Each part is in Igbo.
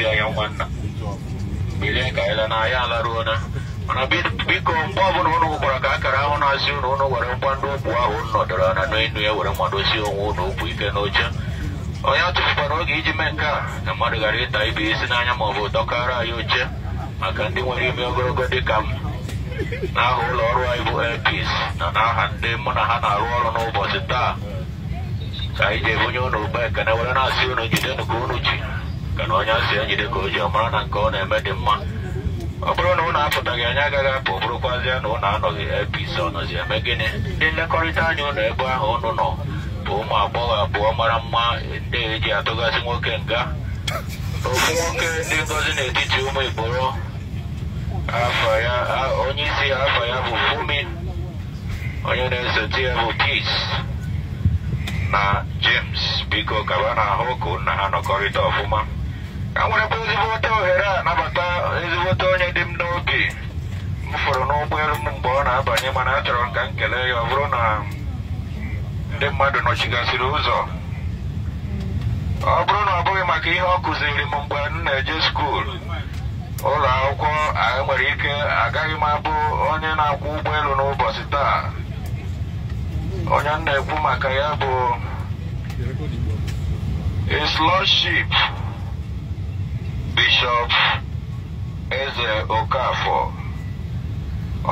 ya yang mana bila kaila na ya laru na ah. mana bi bi kompa pun pun aku pernah kaya kerawan nasi pun pun orang pandu buah pun no dalam anu ini ya orang mandu sih orang pun bui kenoja Oh ya tuh baru lagi jemeka, nama negara itu ibu isinanya mau foto kara yuce, makan di mana dia mau gue dekam, nah ulor wa ibu epis, nah nah hande mana hana ulor no posita, saya jemunya no baik, karena orang nasional jadi no kunuci. na onye asị ya jide ka o ji ọmara na nke ọ na-eme dị mma ọ bụrụ na ụlọ apụtaghị anya agaghị apụ bụrụkwazịa na ụlọ anọghị apc ọnọzi eme gịnị ndị nlekọrịta anya ụlọ ebe ahụ ụnụ nọ bụ ụmụ agbọghọ abụọ mara mma ndị eji atụgasị nwoke nga okwu nwoke ndị ngozi n'etiti ụmụ igboro onye afọ ya bụ fumi onye na-esote ya bụ peace na james biko kaba na ahụ ka ha ọfụma enwerebụ ezigbote ohere a nabata ezigbote onye dị m n'oge m fụrụ n'ụgbọelu m mgbe ọ na-abanye mana achọrọ m ka m kelee ya ọ bụrụ na ndị mmadụ nọchigasịrị ụzọ ọ bụrụ na ọ bụghị maka ihe ọ kụziri m mgbe m na-eje skuul ụlọ akwụkwọ nwere ike agaghị m abụ onye na-akwụ ụgbọelu n'ụbọchị taa onye m na-ekwu maka ya bụ a Bishop Eze Okafor.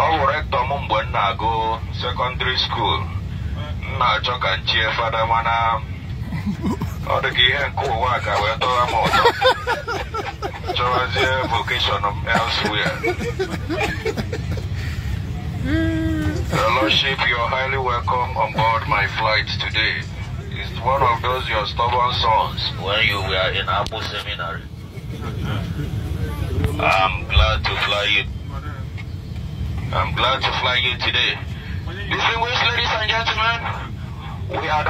Ọ bụ rektọ m mgbe m na-agụ sekọndịrị skuul m na-achọ ka nchie fada mana ọ dị ka ihe nke ụwa ka wee tọwa m ụtọ chọwazie vokeshọn m elsewhere. Your Lordship, you're highly welcome on board my flight today. It's one of those your stubborn sons when you were in Abu Seminary. I'm glad to fly you. I'm glad to fly you today. Distinguished ladies and gentlemen, we are